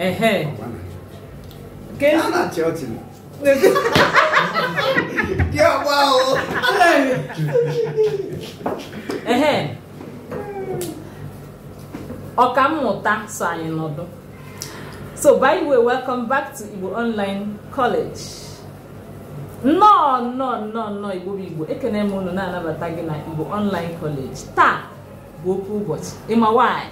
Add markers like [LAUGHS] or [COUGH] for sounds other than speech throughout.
Ehe. ¿Qué es? Ana Churchill. ¡Qué guau! Ehe. Ọkammụta so anyị nọdụ. So by the way, welcome back to Igbo Online College. Nnọọ nnọọ nnọọ nnọọ Igbo bụ Igbo ekene m unu na-anabata gị na Igbo Online College taa bụ okwu ụbọchị ịma nwaanyị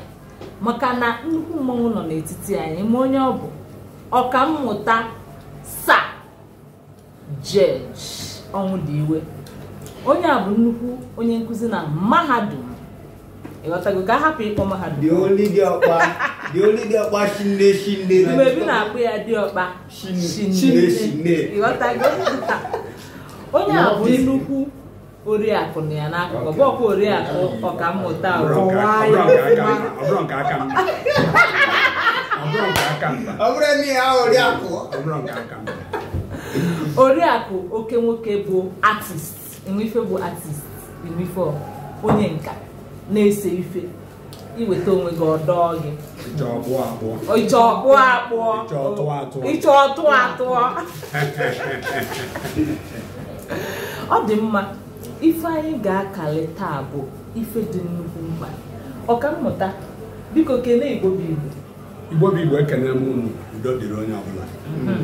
maka na nnukwu mmanwụ nọ n'etiti anyị ma onye ọ bụ ọka mmụta sa jeji ọnwụ dị iwe onye a bụ nnukwu onye nkụzi na mahadum ịghọtago ka a hapụ ịkpọ mahadum mgbebi na-akpụ ya diọkpa ịghọtago [LAUGHS] onye a bụ nnukwu oriakụ na ya n'akụkụ bọkwa oriakụ ọkammụta oriakụ oke nwoke bụ artist Enwefe bụ artist Enwefe onye nka na-ese ife iweta onwe gị ọdọ gị ịchọ ọkpụ akpụọ. ịchọ ọtụ atụọ [LAUGHS] ọ dị mma ife anyị ga-akali taa bụ ife dị nnukwu mkpa ọkammụta biko kelee igbo bụ igbo igbo bụ igbo ekele m unu udo dịrị onye ọbụla hmm.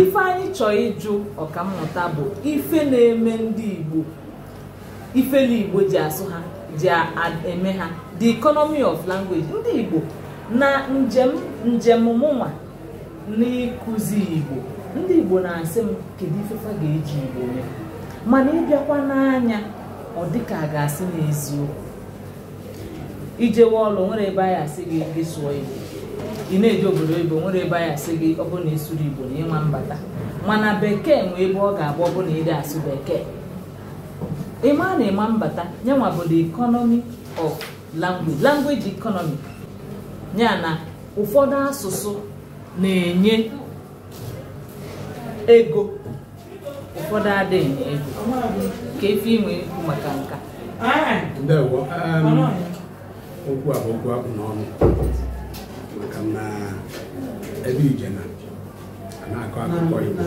ife anyị chọọ ịjụ ọkammụta bụ ife na-eme ndị igbo ifele igbo ji asụ ha ji eme ha the economy of language ndị igbo na njem njem mụnwa n'ịkụzi igbo ndị igbo na-asị m kedu ifefa ga-eji igbo mee mana ịbịakwa n'anya ọ dịka a ga-asị n'eziokwu ijewe ọlụ nwere ebe anyị asị gị gị sụọ igbo ị na-eji obodo igbo nwere ebe anyị asị gị ọ bụrụ na ịsụrụ igbo na ịma mbata mana bekee nwee ebe ọ ga-abụ ọ bụ na ịdị asụ bekee ịma na ịma mbata nyanwa bụ the economy of language language economy ya na ụfọdụ asụsụ na-enye ego ụfọdụ adịghị ego ka efi inwe ikwu maka nka ndewo um, okwu a bụ okwu akpụ n'ọnụ maka na ebe ije na na-akọ akụkọ Igbo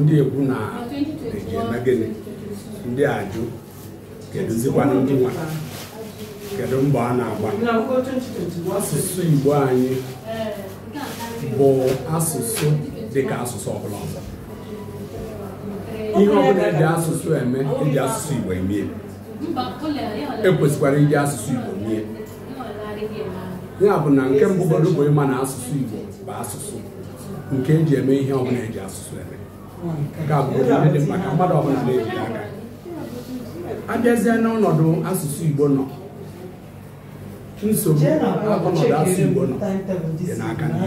ndị egwu na eji eme gịnị ndị ajụ kedụzikwana ndị nwa kedu mbọ a na-agba asụsụ Igbo anyị bụ asụsụ dịka asụsụ ọbụla ọzọ ihe ọbụla eji asụsụ eme eji asụsụ Igbo emie ekwesịkwara iji asụsụ Igbo mie ya bụ na nke mbụ bụrụ bụ ịma na asụsụ Igbo bụ asụsụ nke eji eme ihe ọbụla eji asụsụ eme nke a bụ dị mkpa ka mmadụ ọbụla na-eji aka abịazie n'ọnọdụ asụsụ Igbo nọ nsogbu ọnọdụ asụsụ Igbo nọ dị n'aka ndị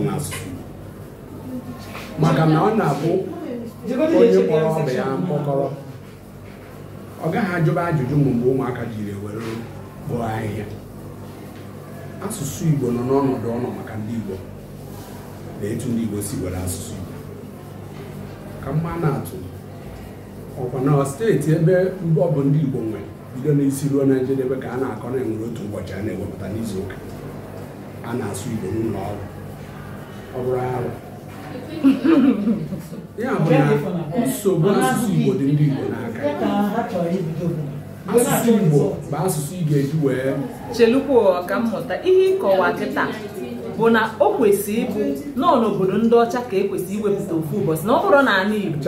nwe asụsụ maka na ọ na-abụ onye kpọrọ ọbịa ya mkpọkọrọ ọ gaghị ajụba ajụjụ ma mgbe ụmụaka jiri were kpụọ ahịhịa asụsụ igbo nọ n'ọnọdụ ọnọ maka ndị igbo na etu ndị igbo si were asụsụ igbo ka mma na-atụ ọkwa na steeti ebe ọ bụ ndị igbo nwere bido n'isi ruo na njedebe ka a na-akọ na enwere otu ụbọchị a na-ewepụta n'izu ụka a na-asụ igbo n'ụlọ ọrụ ọ bụrụ arụ ya bụ eh. na nsogbu asụsụ Igbo dị ndị Igbo n'aka asụsụ Igbo bụ asụsụ ị ga-eji wee chelukwa ọka mmụta ihe ịkọwa kịta bụ na o kwesị ịbụ nọọ n'obodo ndị ọcha ka e kwesị iwepụta ofu ụbọchị na ọ bụrụ n'ala Igbo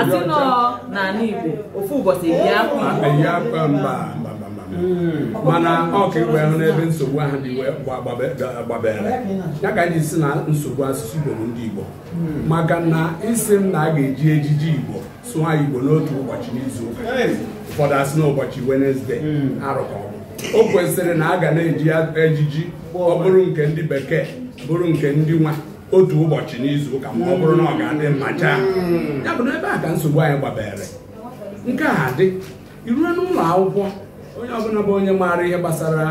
atị nọọ n'ala Igbo ofu ụbọchị eyi akwa Igbo Hmm. mana ọ ka igwe ahụ n'ebe nsogbu ahụ dị gbabere ya ka anyị si na nsogbu asụsụ Igbo bụ ndị Igbo hmm. maka na isi m na a ga-eji ejiji Igbo sụọ Igbo n'otu ụbọchị n'izu ụka ụfọdụ asị n'ụbọchị ụbọchị Wenezdee hmm. arụkọ o kwesịrị na a ga na-eji ejiji ọ bụrụ nke ndị bekee bụrụ nke ndị nwa otu ụbọchị n'izu ụka ma ọ bụrụ na ọ ga-adị mma chaa ya bụ na ebe a ka nsogbu anyị gbabere nke a dị irue n'ụlọ akwụkwọ onye ọbụla bụ onye maara ihe gbasara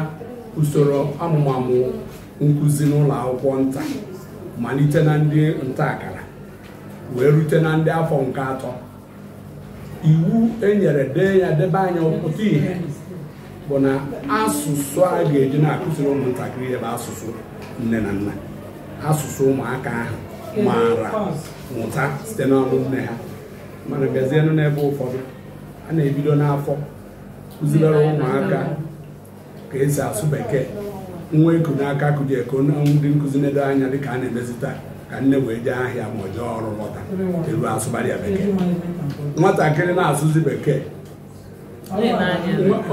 usoro amụmamụ nkuzi n'ụlọ akwụkwọ nta malite na ndị nta akara wee rute na ndị afọ nke atọ iwu enyere dee ya debe anya pụta ihe bụ na asụsụ a ga-eji na-akụziri ụmụntakịrị ebe asụsụ nne na nna asụsụ ụmụaka ahụ maara mụta site n'ọnụ nne ha mana bịazienụ n'ebe ụfọdụ a na-ebido n'afọ kụzilere ụmụaka ka esi asụ bekee nwa eku n'aka kụji eko ndị nkụzi nedo anya dịka a na-emezi taa ka nne wee jee ahịa ma ọ jee ọrụ lọta elu asụgharị bekee nwatakịrị na-asụzi bekee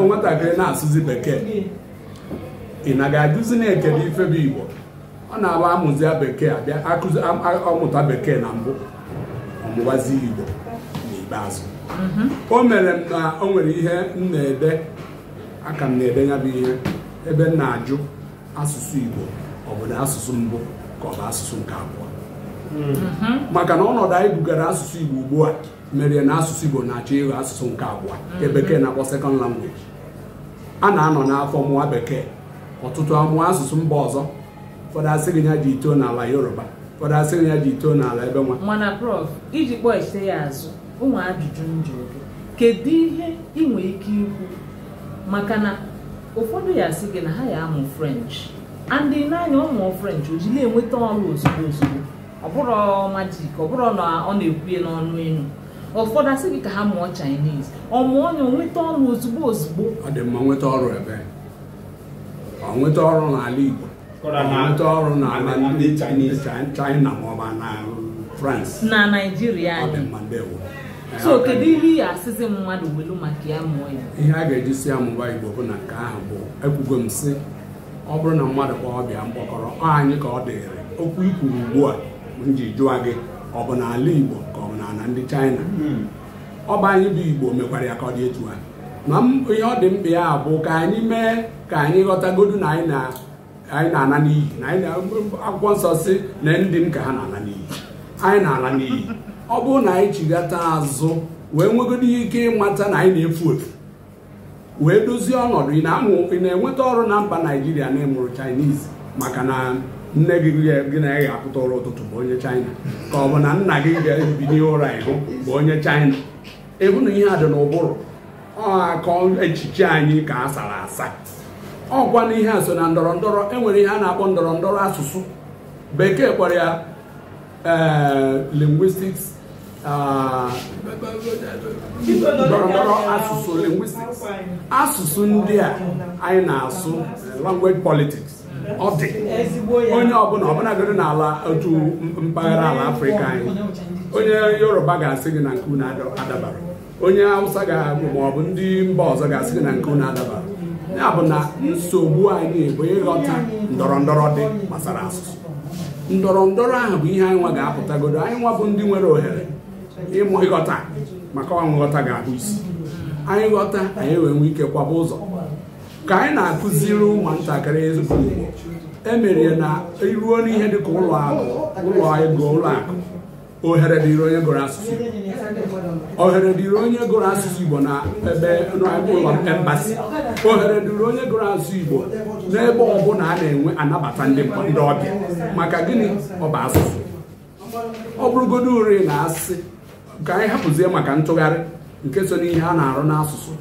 nwatakịrị na-asụzi bekee ị na ga-ajụzi na-ekele ife bụ igbo ọ na-abụ amụzia bekee abịa akụzi ọmụta bekee na mbụ ọmụwazi igbo n'ikpeazụ o mere na o nwere ihe m na-ede aka m na-ede ya bụ ihe ebe m na-ajụ asụsụ Igbo ọ na asụsụ mbụ ka ọ bụ asụsụ nke abụọ mm-hmm. maka na ọnọdụ anyị bugara asụsụ Igbo ugbu a mere na asụsụ Igbo na-achọ ịghọ asụsụ nke abụọ nke mm-hmm. bekee na-akpọ sekọnd langweji a na-anọ n'afọ mụwa bekee ọtụtụ amụọ asụsụ mba ọzọ ụfọdụ asị gị ya ji ito n'ala Yoruba ụfọdụ asị gị ya ji ito n'ala ebe nwa iji kpọọ ya azụ ụmụ ajụjụ njọ kedu ihe ị nwere ike ikwu maka na ụfọdụ ya sị gị na ha ya amụ french andị n'anya ọmụọ french o ji na-enweta ọrụ ozugbo ozugbo ọbụrụ majik ọbụrụ na ọ na-ekwuye n'ọnụ elu ụfọdụ asị gị ka ha mụọ chinese ọ mụọ ya onweta ọrụ ozugbo ozugbo ọ dị mma nweta ọrụ ebe ọ nweta ọrụ n'ala igbo nweta ọrụ n'ala ndị chinese china maọbụ na france na naijiria anyị so kedu ihe iyi asịzi mmadụ welu maka ya mụọ ya ihe a ga-eji si ya mụba igbo bụ na nke ahụ bụ ekwugo m sị ọ bụrụ na mmadụ kwa ọbịa mkpọkọrọ ọ anyị ka ọ dịrị okwu ikwuru ugbu a nji jụa gị ọ bụ n'ala igbo ka ọ bụ n'ala ndị chaịna hmm. ọ bụ anyị bụ igbo mekwara ya ka ọ dị etu a ma ihe ọ dị mkpa ya bụ ka anyị mee ka anyị ghọtagodu na anyị na-ana n'iyi na akwụkwọ nsọ si na ndị m ka ha na-ala n'iyi anyị na-ala n'iyi ọ bụrụ na anyị jighata azụ wee nwegodo ike ịmata na anyị na-efu efu wee dozie ọnọdụ ị na-enweta ọrụ na mba naijiria na-emụrụ chinese maka na nne gị gị na ya ga-apụta ụra ụtụtụ bụ onye china ka ọ bụ na nna gị ga n'ihe ụra ịhụ bụ onye china ịhụ na ihe a dị n'ụbụrụ ga-akọ echiche anyị ka a sara asa ọkwa na ihe a so na ndọrọ enwere ihe a na-akpọ ndọrọ ndọrọ asụsụ bekee kpọrọ ya Eh, linguistics ndọrọndọrọ eh, asụsụ linguistics asụsụ ndị a anyị na-asụ eh, language politics ọ dị onye ọbụla ọbụlagoro n'ala otu mpaghara ala afrịka anyị onye yoruba ga-asị gị na nke unu adabara onye hausa ga-agụ ma ọ bụ ndị mba ọzọ ga-asị gị na nke unu adabara ya bụ na nsogbu anyị bụ ịghọta ndọrọ ndọrọ dị gbasara asụsụ ndọrọ ndọrọ ahụ bụ ihe anyị nwa ga-apụtagodo anyị nwa bụ ndị nwere ohere ịghọta maka ọnwụ nghọta ga ahụ isi anyị ghọta anyị wee nwee ike kwaba ụzọ ka anyị na-akụziri ụmụntakịrị ezigbo igbo emere na iruo n'ihe ka ụlọ ụlọ ego ụlọ akụ ohere dịịrị onye gụrụ asụsụ ohere dịrị onye gụrụ asụsụ Igbo na ebe ụlọ embasi ohere dịrị onye gụrụ asụsụ Igbo n'ebe ọbụla a na-enwe anabata ndị ọbịa maka gịnị ọ bụ asụsụ ọ bụrụgodo uri na asị ka anyị hapụzie maka ntụgharị nke so n'ihe a na-arụ n'asụsụ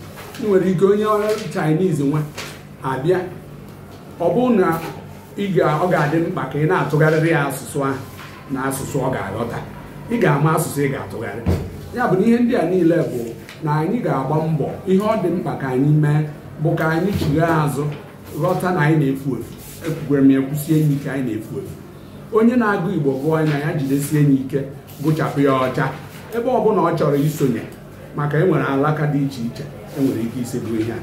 ị nwere ike onye Chinese nwa abịa ọ bụ na ọ ga-adị mkpa ka ị na-atụgharịrị ya asụsụ ahụ na asụsụ ọ ga-aghọta ị ga-ama asụsụ ị ga-atụgharị ya bụ na ihe ndị a niile bụ na anyị ga-agba mbọ ihe ọ dị mkpa ka anyị mee bụ ka anyị chigha azụ ghọta na anyị na-efu efu ekwukwere m ya kwụsie enyi ike anyị na-efu efu onye na-agụ igbo gụọ anya ya jidesie enyi ike gụchapụ ya ọcha ebe ọbụla ọ chọrọ isonye maka enwere alaka dị iche iche enwere ike isi bụ ihe a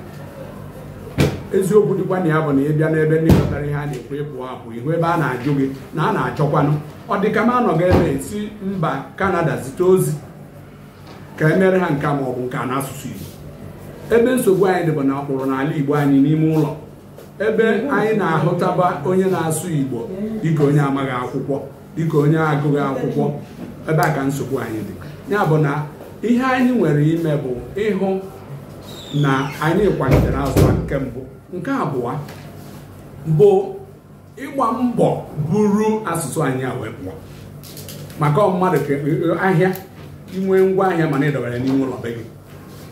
eziokwu dịkwa na ya bụ na ị bịa n'ebe ndị kọtara ihe a na ekwe ịpụ apụ ihu ebe a na-ajụ gị na a na-achọkwanụ ọ dịka m anọghị ebe si mba kanada zite ozi ka emere ha nke ma ọ bụ asụsụ n'asụsụ Igbo ebe nsogbu anyị dịbụ na ọkpụrụ n'ala Igbo anyị n'ime ụlọ ebe anyị na-ahụtaba onye na-asụ Igbo dịka onye amaghị akwụkwọ dịka onye agụghị akwụkwọ ebe a ka nsogbu anyị dị ya bụ na ihe anyị nwere ime bụ ịhụ na anyị kwalitere azụ nke mbụ nke abụọ bụ ịgba mbọ buru asụsụ anyị a wee pụọ maka ọmmadụ ahịa inwe ngwa ahịa mana ị dọbara n'ime ụlọ be gị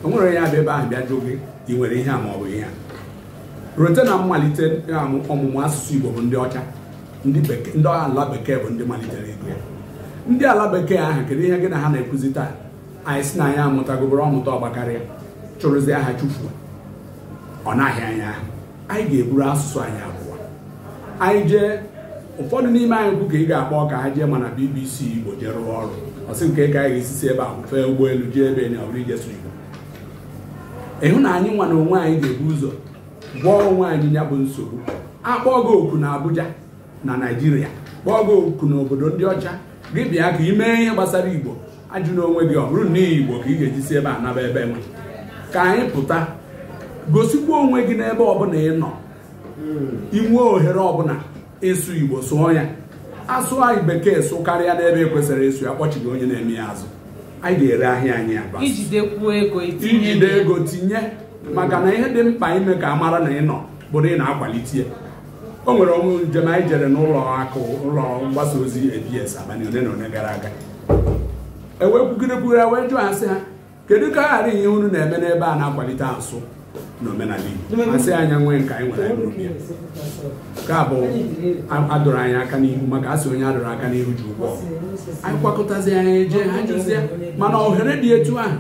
o nwere ya bụ ebe ahụ bịa jụọ gị ị nwere ihe a ma ọ bụ ihe a rote na mmalite ọmụmụ asụsụ Igbo bụ ndị ọcha ndị ala bekee bụ ndị malitere ego ya ndị ala bekee ahụ kedu ihe gị na ha na-ekwuzi taa anyị si na anyị amụtagobere ọmụta ọgbakarịa chụrụzi aha chụfuo ọ naghị anya ahụ anyị ga-eburu asụsụ anyị abụọ anyị jee ụfọdụ n'ime anyị kwu ka ị ga-akpọ ka ha jee mana BBC Igbo jee rụọ ọrụ ọsị nke ka anyị ga-esi si ebe a fee ụgbọelu jee ebe na ọbụrụ ije sụrụ ịhụ na anyị nwa na onwe anyị ga-ebu ụzọ gwọọ onwe anyị ya bụ nsogbu akpọọ gị oku na Abuja na Naịjirịa kpọọ gị oku n'obodo ndị ọcha gị bịa ka ị mee ihe gbasara Igbo ajụ n'onwe gị ọ bụrụ na Igbo ka ị ga-eji si ebe a naba ebe nwe ka anyị pụta gosikwa onwe gị n'ebe ọbụla ị nọ inwe ohere ọbụla ịsụ Igbo sụọ ya asụ anyị bekee sụ karịa n'ebe e kwesịrị ịsụ ya kpọchighị onye na-eme ya azụ anyị ga-ere ahịa anyị aba ijide ego tinye maka na ihe dị mkpa ime ka a mara na ị nọ bụrụ ị na-akwalite o nwere ọnwụ njem anyị jere n'ụlọ akụ ụlọ mgbasa ozi abs abalị one na ole gara aga ewepụgịrịpụgịra e wee jụọ asị ha kedu ka a ghara ihe unu na-eme n'ebe a na-akwalite asụ n'omenala Igbo asị anya nwee nke anyị nwere anyị ya nke a bụ adọrọ anyị aka n'ihu maka asị onye adọrọ aka n'ihu ji ụgwọ anyị kwakọtazi eje ha jụzie mana ohere dị etu ahụ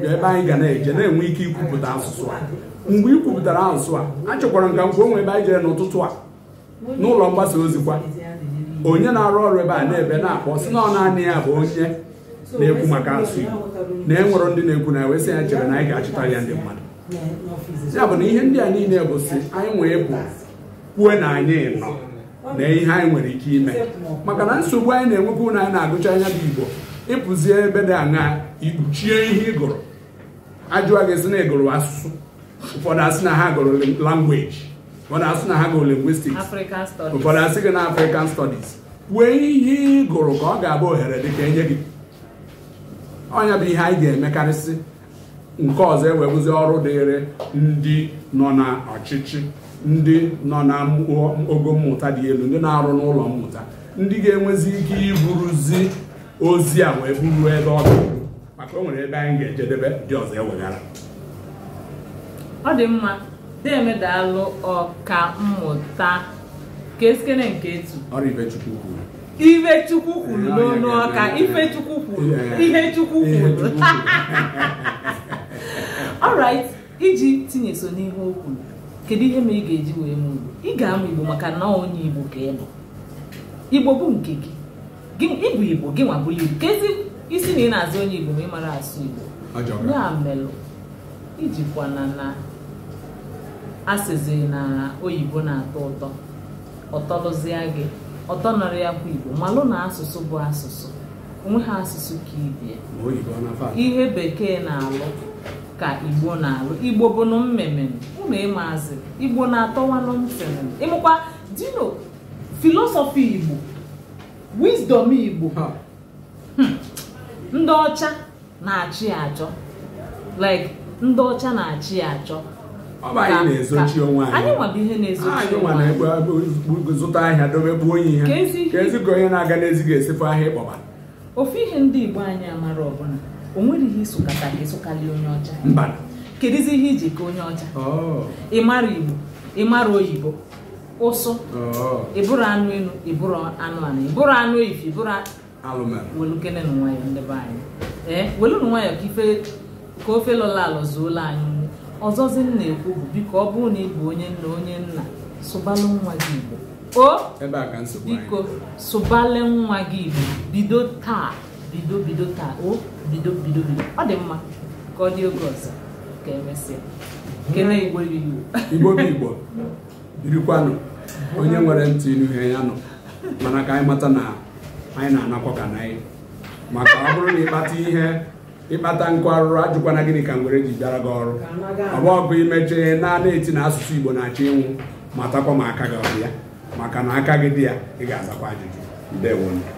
bụ ebe anyị ga na-eje na-enwe ike ikwupụta asụsụ a mgbe ị kwupụtara asụsụ a achọkwara nka ka m ebe anyị jere n'ụtụtụ a n'ụlọ mgbasa ozi kwa onye na-arụ ọrụ ebe a na-ebe na-akpọ si na ọ naanị ya bụ onye na-ekwu maka asụsụ Igbo na enwere ndị na-ekwu na ewesị ya chere na anyị ga-achịta ya ndị mmadụ ya bụ na ihe ndị a niile bụ si anyị nwee bụ kwuo na anyị nọ na ihe anyị nwere ike ime maka na nsogbu anyị na-enwepụ na anyị na-agụcha anya bụ igbo ịpụzie ebe dị aṅa ikpuchie ihe ị gụrụ ajụwa gị sị na ị asụsụ ụfọdụ asị na ha gụrụ langweji ụfọdụ asị na ha gụrụ lingwistiks ụfọdụ asị gị na afrịkan stọdis kwuo ihe ịgụrụ ka ọ ga-abụ ohere dị ka enye gị ọnya bụ ihe anyị ga-emekarịsị nke ọzọ ewebụzi ọrụ dịrị ndị nọ n'ọchịchị ndị nọ na ogo mmụta dị elu ndị na-arụ n'ụlọ mmụta ndị ga-enwezi ike iburuzi ozi a wee buru ebe ọ dị maka o nwere ebe anyị ga-ejedebe ndị ọzọ eweghara ọ dị mma demedalụ ọka mmụta keskene nketu ọrụ Ifechukwu kwuru Ifechukwu kwuru n'onu ọka Ifechukwu kwuru ihe Chukwu kwuru [LAUGHS] alright iji tinye so n'ihe okwu kedu ihe ma ị ga-eji wee mụ igbo ị ga-amụ igbo maka na onye igbo ka ị bụ igbo bụ nke gị ịbụ igbo gị nwa bụrụ igbo kezi isi na ị na-azụ onye igbo ma ị mara asụ igbo ya melụ ijikwa na asịzi na oyibo na-atọ ụtọ ọtọlụzie gị ọtọ nọrọ ya bụ igbo malụ na asụsụ bụ asụsụ onwe ha asụsụ ka ibie ihe bekee na-alụ ka igbo na-alụ igbo bụ bụnụ mmemme ụnụ ịmaazị igbo na-atọwanụ ntị ịmụkwa dino filosofi igbo wisdom igbo hmm. ndị ọcha na-achị achọ like ndị ọcha na-achị achọ anyị nwabụ ihe na-ezochi onwe anyị ofu ihe ndị igbo anyị amara ọbụla o nwere ihe isokata ka ịsụkarị onye ọcha kedizi ihe iji ka onye ọcha ịmara igbo ịmara oyibo ụsụ ịbụrụ anụ elu ịbụrụ anụ ala ịbụrụ anụ ife ịbụrụ welukene na nwayọ ndị be anyị ee welu na nwayọ ka ife ka ofe lọla alọ zuola anyị ọzọzi m na-ekwu bụ biko ọ bụrụ na ị bụ onye nna onye nna sụbalụ nwa gị igbo o biko sụbalụ nwa gị igbo bido taa bido bido taa o bido bido bido ọ dị mma ka ọ dị oge ọzọ ka emesịa kene igbo igbo igbo bụ igbo birikwanụ onye nwere ntị n'ihe ya nọ mana ka anyị mata na anyị na-anakwa ka na anyị maka ọ bụrụ na ịkpata ihe ịkpata nkụ arụrụ ajụkwana gịnị ka nwere ji bịara gị ọrụ ọ bụ ọgụ imechee naanị eti na asụsụ igbo na-achọ ịnwụ matakwa ma aka gị ọbịa maka na aka gị dị ya ị ga-azakwa ajụjụ ndewo